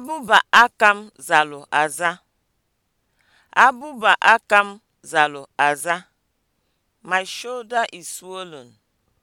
Abụba akam m zalụ aza. aza. My shoulder is swollen.